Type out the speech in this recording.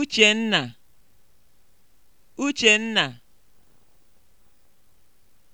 Uchenna, Uchenna